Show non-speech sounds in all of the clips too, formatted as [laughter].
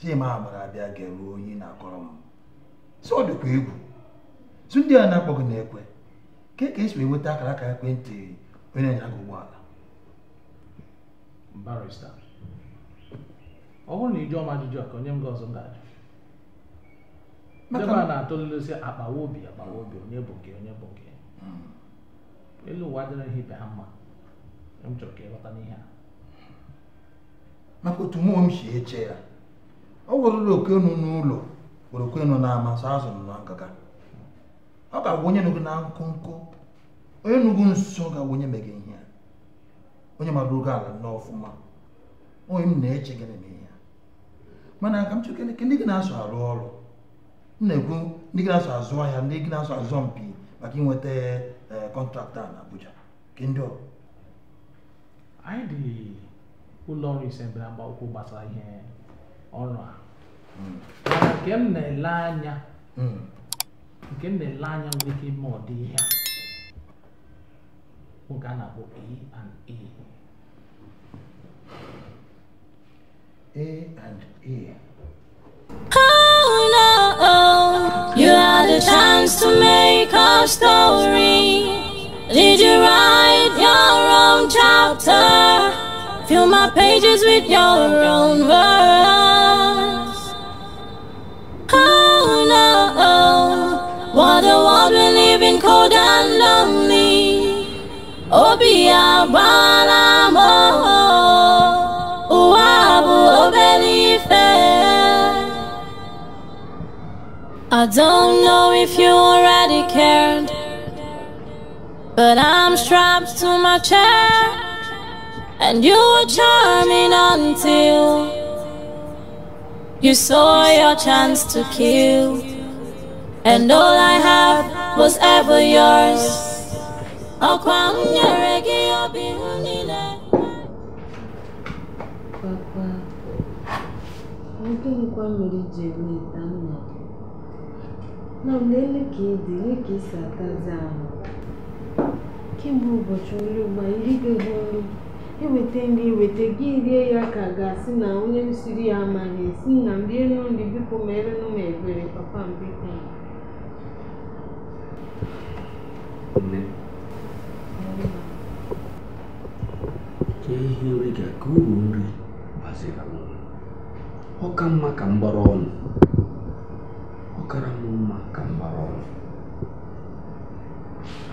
Chima gbara abịa ga-ewe onye na-akọrọ m so ọ dịkwa egwu su ndị a na-akpọghị na-ekwe ka e ka esi enweta akara aka ekwentị onye na-anya gị ụgbọala barista ọ bụrụ na ị ọma ajụjụ a ka onye m gị ọzọ m ga-ajụ debe a na-atụlelesi akpawa obi akpawa obi onye bụ nke onye bụ nke hmm. elu ụwa ihe ibe ha mma m chọrọ ka ịghọta n'ihe a maka otu mmụọ m si eche ya ọ wụrụrụ okenu n'ụlọ were okenu na-ama sọ azụ na nkaka ọ ga-agwa onye nụgụ na nkụnkụ onye nụgụ nso ga-agwa onye meghe ihe ya onye mara oge ala ọfụma, onye m na-eche gịnị na ihe mana ka m chụke ndị gị na-asụ arụ ọrụ m na-ekwu ndị gị na-asụ azụ ahịa ndị gị na-asụ azụ mpi maka inweta kọntraktọ eh, na Abuja nke ndị ọrụ anyị dị ụlọ ọrụ ise mbere mgba gbasara ihe ọrụ mm. mm. a nke m na-ele anya nke m na-ele anya nwere ike ime ọdị ihe a oge a na and and Oh no, you had a chance to make our story. Did you write your own chapter? Fill my pages with your own words. Oh no, what a world we live in, cold and lonely. I don't know if you already cared, but I'm strapped to my chair, and you were charming until. You saw your chance to kill, and all I had was ever yours. Papa, nwoke nkwa mmiri ji eme ịta nna gị. Na mgbe ele ka ịdị, ele ka isi atazi ahụ. Kemgbe ụbọchị nri na ndị nri weta gị rie ya ka ga-asị na onye siri ya amaghị si na m rienu nri biko merenụ m ebere papa m biko nne ka ihe nri ga ka uru nri bazira m ọ ka mma ka m gbara ọnụ ọ kara m mma ka m gbara ọnụ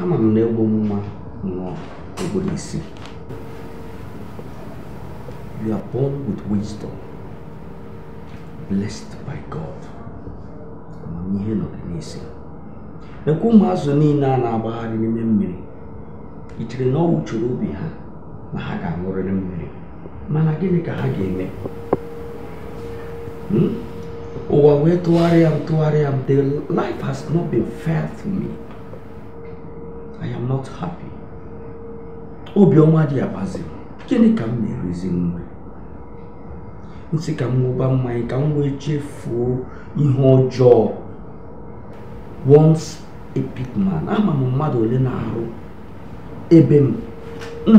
ama m na egbo nwa nnọọ ogboro isi You are born with wisdom, blessed by God. Amamihe nọ gị n'isi. Ekwu ụmụ azụ niile a na-agbagharị n'ime mmiri, i chere obi ha na ha ga-aṅụrịrị mmiri. Mana gịnị ka ha ga-eme? m the life has not been fair to me I am not happy obiọma dị abazi gịnị ka m na m sị ka m ṅụba mmanya ka m wee chefuo ihe ọjọọ once a big man ama m mmadụ ole na-arụ ebe m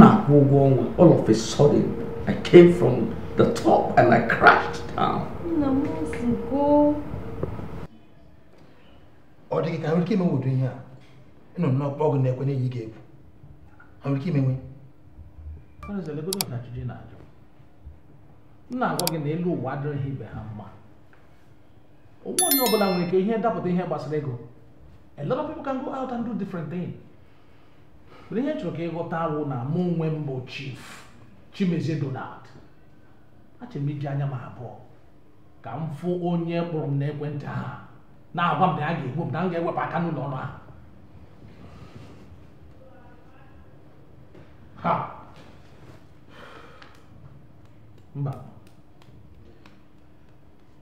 na-akwụ ụgwọ ọnwa all of a sudden I came from the top and I crashed down. ọ dịghị ka nwere ike imenwodo ihe a ịnọ n'ọkpọ ọgụ na-ekwenye ya ị ga-ekwu nwere ike imenwe m na-agwa gị na elu ụwa adịrịghị ibe ha mma onwe onye ọbụla nwere ike ihe dapụta ihe gbasara ego a lot of people can go out and do different thing mana ihe chọrọ ka ịghọta wụ na mụ onwe mbụ bụ chief Chimezie Donald achọrọ m iji anya m abụọ ka m fụ onye kpụrụ m n'ekwentị ha na-agwa m na a ga-egbu m na m ga-ewepụ aka n'ụlọ ọrụ ahụ mba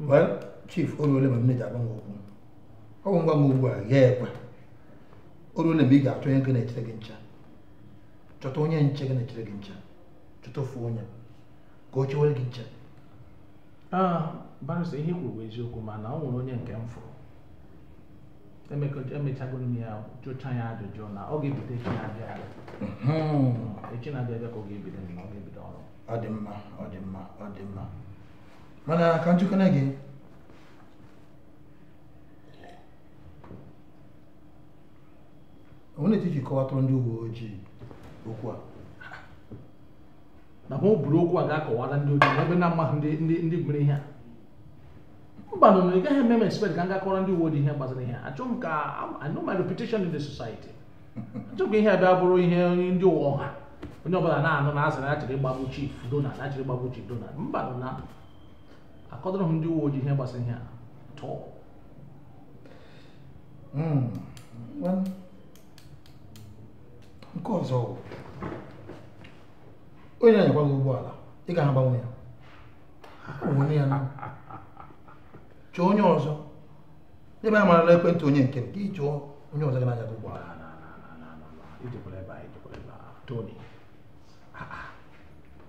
well chief oruole ma m na-eji agwa m okwu ọ bụ ngwa m ugbu a ghaa ekwe oruole mgbe ị ga-achọ onye gị na-echere gị ncha chọta onye nche gị na-echere gị ncha chọta ofu onye ka o chewere gị nche barụsa ihe kwuru bụ eziokwu mana ọ nwere onye nke m fụrụ emechago m ya jụcha ya ajụjụ na ọ ga-ebido echi na-abịa abịa echi na-abịa abịa ka ọ ga-ebido na ọ ga-ebido ọrụ ọ dị mma ọ dị mma ọ dị mma mana ka njikọna gị onye na-etiti kọwatụrụ ndị uwe ojii okwu a na ma o buru okwu a ga-akọwara ndị ojii n'ebe na amaghị ndị ndị ndị mere ihe a mba nọ ị gaghị eme m expect ka m gakọrọ ndị uwe ojii ihe gbasara ihe a m ka I know my reputation in the society achọ ihe a bịa bụrụ ihe ndị ụwa ọha onye ọbụla na-anụ na azara achịrị ịgbagbu chief na achịrị ịgbagbu chief Donald mba nọ na akọdọrọ hụ ndị uwe ojii ihe gbasara ihe hmm. atọ nke ọzọ bụ onye anyakwa gị ụgbọala ị ga agbanwe ya onwe ya na chọọ onye ọzọ ebe a marala ekwentị onye nke nke ị chọọ onye ọzọ gị na-anya gị ụgbọala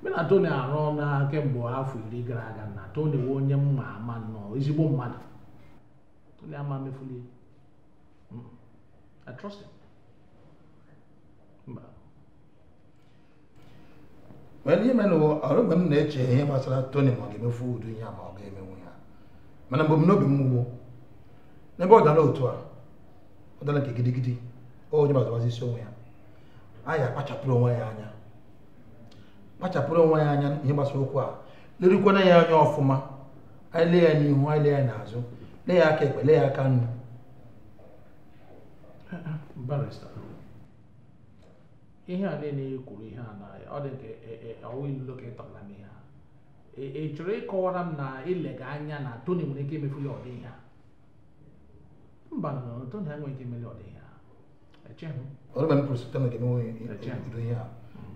mụ na Tony arụ ọrụ kemgbe afọ iri gara aga na Tony wee onye mma ama nnọọ ezigbo mmadụ Tony ama mefulie hmm. I trust him wee ihe mere ọrụ mgbe m na-eche ihe gbasara Tony ma ọ ga-emefu udu ya ma ọ ga-emenwu ya mana mgbe m n'obi m wuo n'ebe ọ dara otu a ọ dara nke gidigidi onye gbazagbazi isi onwe ya anyị kpachapụrụ onwe ya anya kpachapụrụ onwe ya anya ihe gbasara okwu a lerukwana ya anya ọfụma a lee ya n'ihu anyị ya n'azụ lee aka ekpe lee ya aka nnu ihe a niile kwuru ihe a na ọ dị ka m ihe a chọrọ ịkọwara m na ilega anya na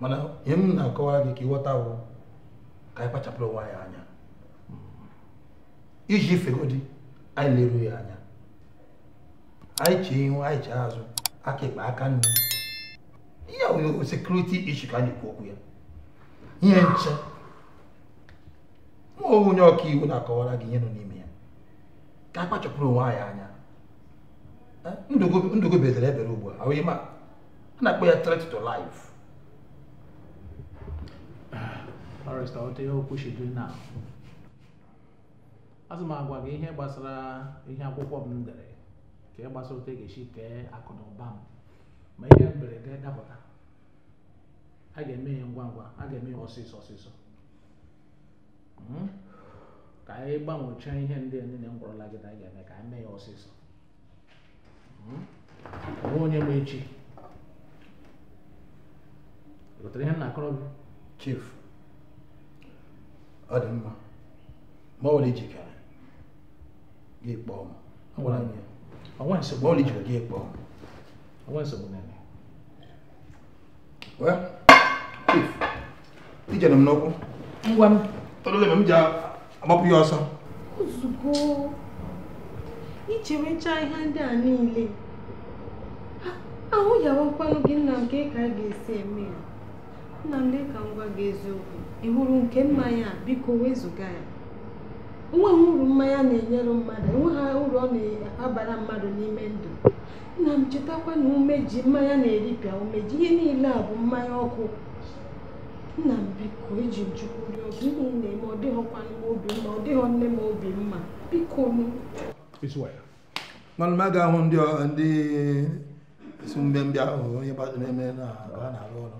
mana ihe m na-akọwara gị ka ịghọta bụ ka anyị kpachapụrụ onwe anyị anya iji ifegodi anyị leruo ya anya anyị chee ihu anyị chee azụ aka ekpe aka nri ihe nwere sekuriti ishi ka anyị kwu okwu ya ihe nche nwa onye ọka iwu na-akọwara gị ihe nọ n'ime ya ka a kpachapụrụ onwe anyị anya eh, ndụgo bezere ebere ugbu a ahụ ihe ma a na-akpọ ya threat to life ọ rịstọrọta ihe okwu should do now azụ m agwa gị ihe gbasara ihe akwụkwọ m dere ka ị gbasara otu e ga-esi kee akụ na ụba m ma ihe mberede dapụta a ga-eme ya ngwa ngwa a ga-eme ya ọsịsọ ọsịsọ hmm? ka anyị gbanwechaa ihe ndị niile m gwọrọla gị na a ga-eme ka anyị mee ya ọsịsọ onwe hmm? onye ma echi gotere ihe m na-akọrọ gị chief ọ dị mma ma ọ were jikere gị kpọọ m ma ọ lijiri gị kpọọ m ijere m n'ụkwụ ngwa m tọrọle m ji agbapụ ya ọsọ ozugbo icherecha ihe ndị a niile ahụ yawa nkwanụ gị nna m ka ị ka a ga-esi eme ya nna m lee ka m gwa gị eziokwu ị hụrụ nke mmanya a biko wezụga ya enweghị uru mmanya na-enyere mmadụ enweghị uru ọ na-abara mmadụ n'ime ndụ nna m chetakwa na umeji mmanya na-eripịa umeji ihe niile a bụ mmanya ọkụ nna m biko iji eji chukwu rịọ ọgụ ihe na-eme ọ dịghịkwa obi mma ọ dịghị nne m obi mma biko nụ mana m ahụ ndị si mbịambịa ahụ onye na-eme na ha na-arụ ọrụ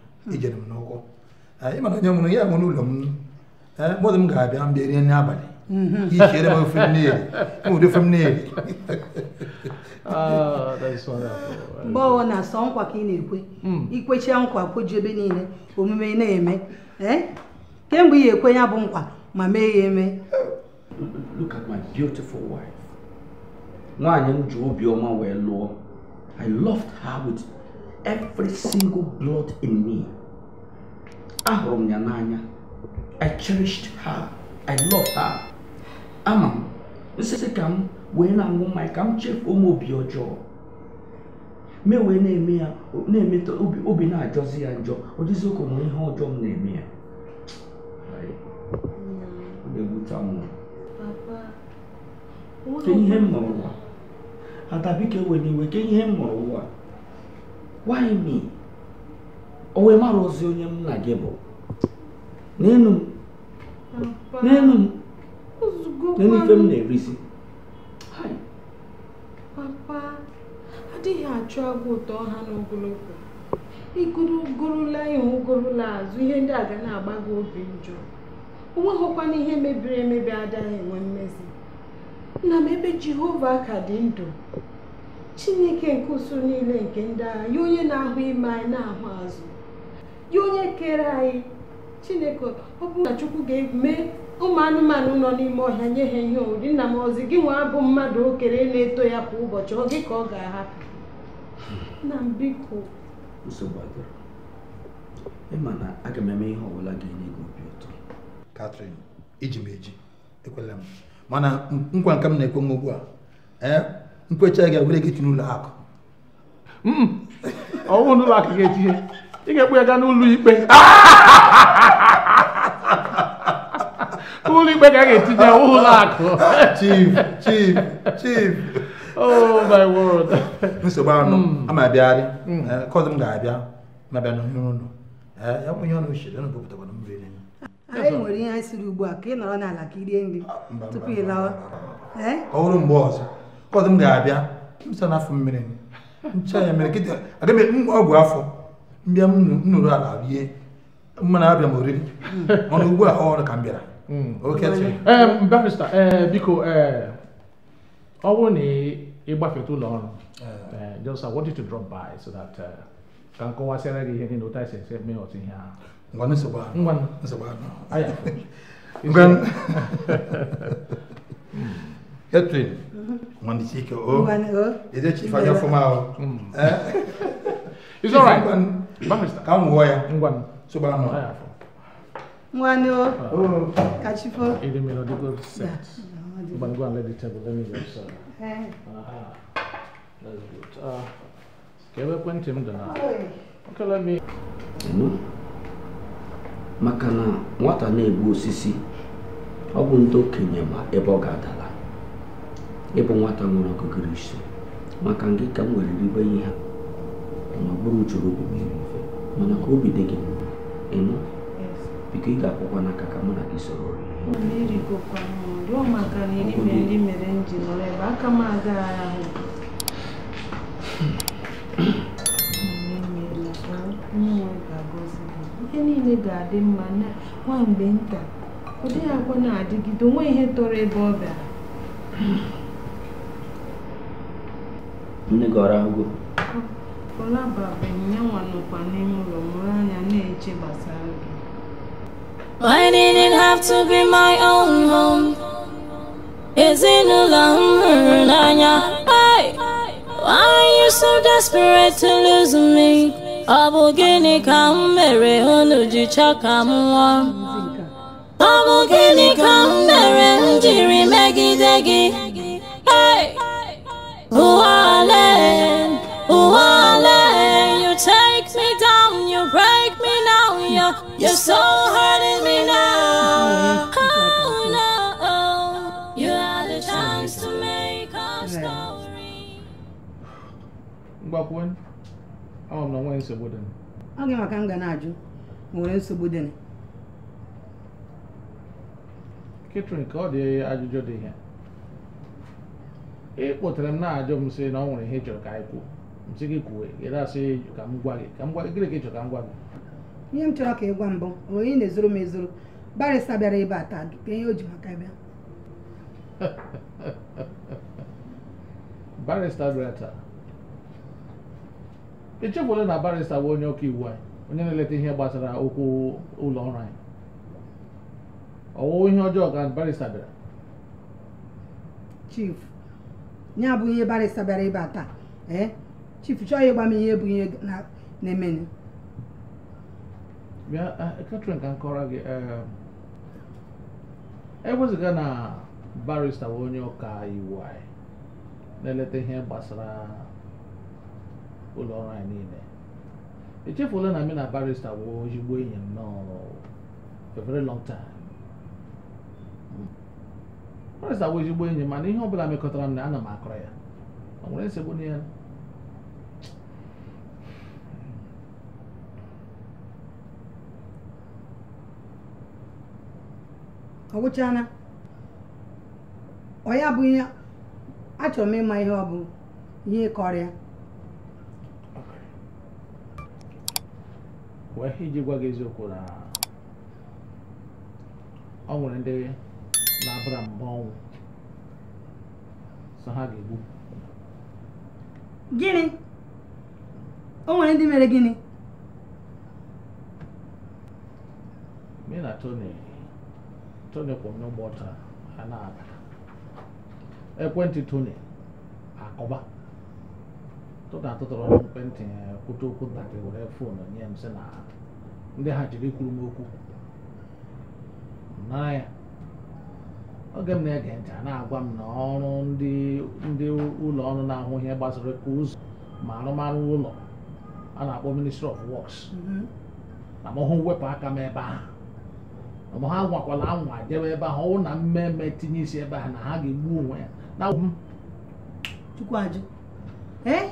ijere m n'ụkwụ mana onye mụrụ ya nwere ụlọ m mmadụ m ga-abịa mbịa rie nri abalị mhm. ihere m ofe mmiri ụdị ofe mmiri [laughs] ah, mgbe na asọ nkwa ka ị na-ekwe hmm. ikwechie nkwa kweji ebe niile omume na-eme kemgbe ị ga-ekwe ya bụ nkwa ma mee ya eme nwaanyị m ji obiọma wee lụọ I loved her with every single blood in me. Ahụrụ m ya n'anya. I cherished her. I love her. Ama m nsịsị ka m wee na-aṅụ mmanya ka m chefuo m obi ọjọọ. Mee wee na-eme ya na-emeta obi na-ajọzi ya njọ ọ dịzị ụka nwere ihe ọjọọ m na-eme ya. Ọ na-ewute m. Ke ihe m mụrụ ụwa. Ada biko ewela iwe ke ihe m mụrụ ụwa. why me o wee mara ozi onye na gị bụ n'enu m n'enu m n'enu ife m na-erisi papa adịghị achụ agwa ụtọ ha n'ogologo igoro gorula ihu gorula azụ ihe ndị a ga na-agba gị obi njọ onweghịkwana ihe mebiri emebi adịghị enwe mmezi nna m ebe jehova ka dị ndụ chineke nke usoro niile nke ndị agha ya onye na-ahụ ime anyị na-ahụ azụ ya onye kere anyị chineke ọ na chukwu ga-eme ụmụ anụmanụ nọ n'ime ọhịa nye ha ihe oriri nna m ọzi gị nwa bụ mmadụ okere na-eto ya kwa ụbọchị ọ gị ka ọ ga-ahapụ na mbiko ịma na aga m eme ihe ọbụla ga-enye gị obi ụtọ Katrin iji m eji ekwela m mana nkwa nke m na-ekwe m ugbu a nkwecha gị were gị tinye ụlọ akụ hmm. ọnwụ n'ụlọ akụ ga-etinye ị ga-ekpu ya gaa n'ụlọ ikpe ụlọ ikpe ga-etinye ụlọ akụ chief chief chief oh my nsogbu anụ hmm. ama abịagharị hmm. eh, m ga-abịa mabịa ụlọ eh, ya ọnụ uche ọnụ mmiri anyị nwere ihe anyị siri ugbu a ka ị nọrọ n'ala ka irie nri ah, tupu ị lawa eh? ọ bụrụ mgbe ọzọ kọzi m ga-abịa msa na afọ mmiri ncha ya mere kịta aga m e, ọgwụ afọ mbịa m nụrụ ala rie mmanụ abịa m oriri [laughs] ọnụ ugbu a ọrụ ka m bịara hmm. oke barista eh, biko eh, ọ bụrụ na ịgbafeta ụlọ ọrụ eh. just I want you to drop by so that ka m kọwasịara gị ihe niile ụta esi esi mee otu ihe ahụ ngwa nsogbu ahụ ngwa nsogbu ahụ [laughs] ngwa [laughs] Hetwin. Mwanizike o. Ede chifa o. It's all right. Ka m wụọ ya. Ngwan. Soba o. Ka set. go and let the table. Let me just. Uh, That's good. Uh, ekwentị m dị Okay, let me. nwata na ebu osisi, ọ bụ ndị okenye ma ebe ịbụ nwata nwere ọgụgụrụ isi maka gị ka m nwere ribe ihe ha, ma bụrụ uchoro obi mmiri mana ka obi dị gị ịnụ biko ị ga-akwụkwa n'aka ka mụ na gị soro ihe niile ga-adị mma nwa nta ọ dịghị na-adịgide onwe ihe tọrọ ebe ọ bịara nne gị ọrụ agụ Why didn't have to be my own home? Is Ezinụlọ m hụrụ Hey, Why are you so desperate to lose me? Ọ bụ gịnị ka m mere unu ji chọọ ka m nwụọ? Ọ mere m megide gị? Hey! you take me down, you break me now, you're, you're so hurting me now. Oh no, you had a chance to make our story. Gbakwun, ọ m na nwee nsogbu dị ọ gị maka m ga na-ajụ nwere nsogbu dị Catherine ka ọ dị ajụjụ dị ihe ị kpọtara m na-ajụ m sị na ọ nwere ihe ị chọrọ ka anyị kwuo m sị gị kwuo ị na-asị ka m gwa gị ka m gwa gịnị ka ị chọrọ ka m gwa gị ihe m chọrọ ka ị gwa mbụ onye na-ezoro m ezoro barịsa bịara ebe a taa ka ihe o ji maka bịa barịsta bịara taa echefuola na barịsta bụ onye ọka iwu anyị onye na-eleta ihe gbasara okwu ụlọ ọrụ anyị ọwụwa ihe ọjọọ ka barịsta bịara chief nye abụghị ihe barịsta bịara ịba taa ee chief chọọ ịgba m ihe bụ ihe na-emenụ Catherine ka m gị e ewezụga na barịsta bụ onye ọka iwu anyị na-eleta ihe gbasara ụlọ ọrụ anyị niile echefula na m na barịsta bụ ezigbo enyi m nọ for a very long time Morris awụ ezigbo enyi mana ihe ọ bụla mekọtara m na ana m akọrọ ya ọ nwere nsogbu n'ihe. ọ gwụchala ọ ya bụ ihe achọrọ m ịma ihe ọ bụ ihe kọrịa wee iji gwa gị eziokwu na ọ nwere ndị na abara mba ọnwụ so ha ga-egbu gịnị o nwere ndị mere gịnị me na Tony Tony kwụ ụgbọ taa ha na-aga ekwentị Tony akọba tụta atụtụrụ m ekwentị e, kwute okwu ntakịrị were foonu nye m sị na ndị ha jiri kwuru m okwu nara ya oge m na-ege ntị na-agwa m na ọrụ ndị ụlọ ọrụ na-ahụ ihe gbasara ka ụzọ ma arụmarụ ụlọ a na-akpọ ministry of works mm-hmm. na mọhụ wepụ aka m ebe ahụ ma ha nwakwala anwa jebe ebe ahụ ọwụ na mmemme tinye isi ebe ahụ na ha ga-egbu onwe ya na m ee eh?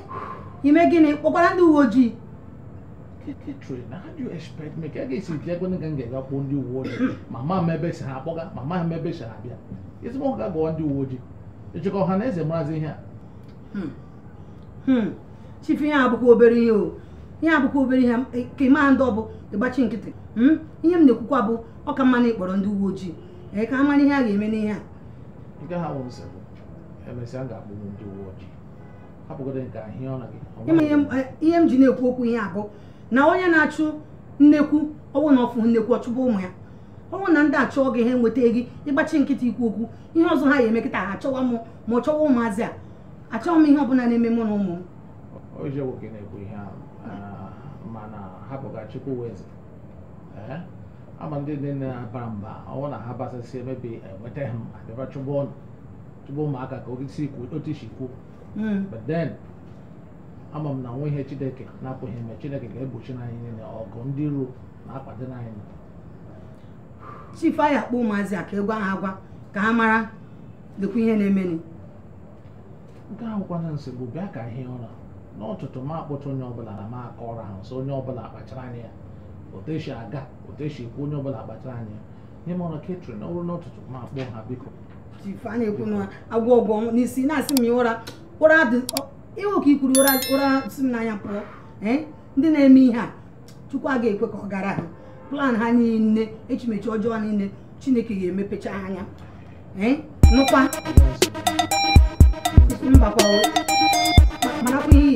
ime gịnị kpọkwara ndị uwe ojii trade na how do you expect me ka a ga ekwe m ga ndị uwe ojii ma m ebe si m ebe si abịa ezigbo ọga ọ ndị uwe ojii ịchịkọ ọha na eze marazị ihe a chifu ihe agbụkwa obere ihe o ihe agbụkwa obere ihe ka ị ndị nkịtị ihe m na-ekwukwa bụ ọ na ịkpọrọ ndị uwe ojii ka a ihe a ga-eme n'ihe a nke ha bụ nsogbu emesịa ndị uwe ojii ihe m ji na-ekwu okwu ihe abụ na onye na-achụ nnekwu ọnwụ na ọfụ nnekwu ọchụba ụmụ ya ọnwụ na ndị achọ gị ha enweta gị ịgbachi nkịta ikwu okwu ihe ọzọ ha ya emekịta ha achọwa m ma ọ chọwa ụmụazị a achọghị m ihe ọbụla na-eme mụ na ụmụ m ama ndị nne nne na-aba mba ọnwụ na ha basasị emebi enweta ha abịara chụba ụmụaka ka otu si kwuo mm. but then ama m na nwa ihe chineke na-apụghị ime chineke ga-egbochi na niile ọgụ ndị ruo na-akwado anyị chifu anyị akpọ ụmụazị a ka egwu ha agwa ka ha mara dịkwa ihe na-emeni nke ahụ kwana nsị bụ bịa ka ihe ụra n'ọtụtụ ma akpọta onye ọbụla na ma aka ọra ha nso onye ọbụla akpachara anya ya oteshi aga oteshi ekwu onye ọbụla akpachara anya ya ihe mara ketri na ọrụ n'ọtụtụ ma akpọ ha biko chifu anyị ekwu na agwọ ọgwọ n'isi na-asị m ya ụra ụra iwe ka ikwuru ụra ụra si m n'anya pụọ eh? ndị na-eme ihe a chukwu a ga-ekwe ka ọ gara ha plan ha nne echimechi ọjọọ niile chineke ga-emepecha anya eh? nụkwa mbakwa marakwa ihe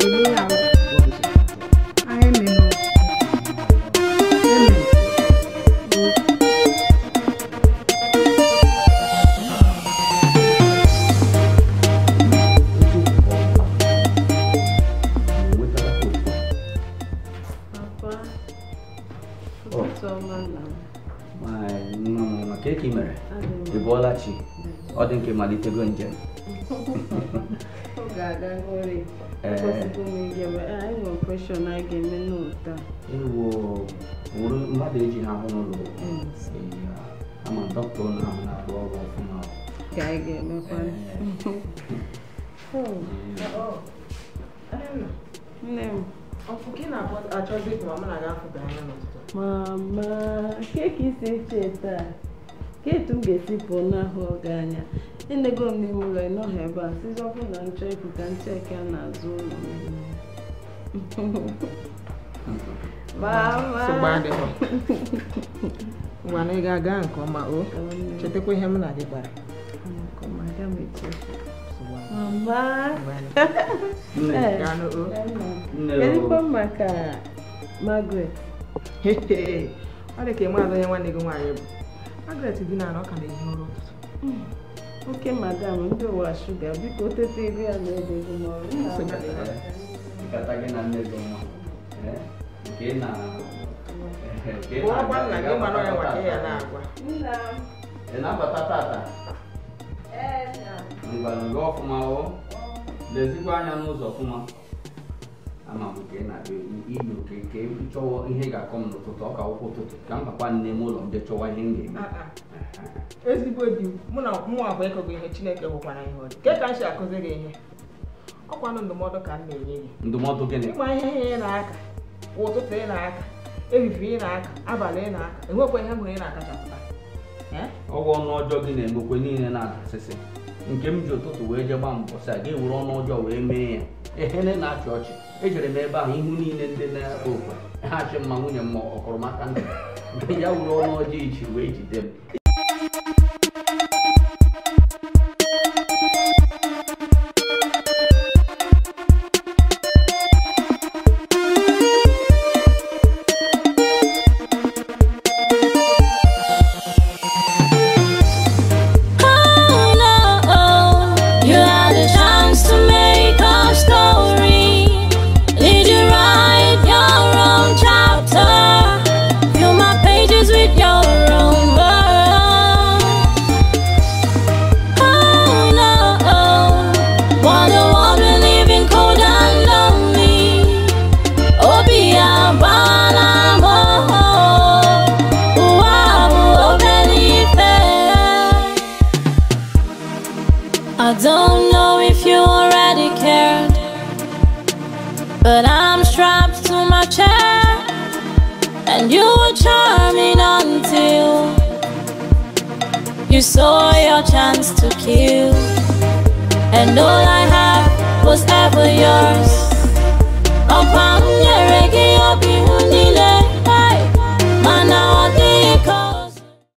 mama keki isi eche taa ketu m ga-esi pụọ n'ahụ oge anya enego m n'ime ụlọ ịnọghị ebe a sizọpụ na nchọ ịpụ ka ncheke a na-azụ ụlọ mana ị ga-aga nke ọma o chetakwa ihe m na gị kpara ezigbo maka eh, Margaret ọ dị ka maazị onye nwanne gị nwaanyị bụ magret dị na ọka na ehi ụra ụtụtụ oke madam ndị ụwa shuga biko tete ego ya na na-abata hazigara uri ọfụma o lezikwa anya n'ụzọ ọfụma ama m nke na inu nke m chọwa ihe ga-akọ m n'ụtụtụ ọka akwụkwọ ụtụtụ ka m papa nne m ụlọ nde chọwa ihe m ga-eme ezigbo di mụ na bụ ihe chineke gwụkwara ihe ka m si gị ihe ọkwanụ ndụmọdụ ka m na-enye gị ndụmọdụ gịnị ịma ihe ihe ị na ị na-aka ehihie ị na-aka abalị ị na-aka niile na-adasịsị nke m ji ụtụtụ wee jee gbaa mbọsị a ga ọnụ ọjọọ wee mee ya ehene na-achị ọchị ejere m ebe ahụ ihu niile ndị na-ekwe okwe ha achị mma nwunye m ọkọrọ maka ndụ [laughs] ya were ọnụ ọjọọ ichi wee jide m saw your chance to kill And all I had was ever yours Upon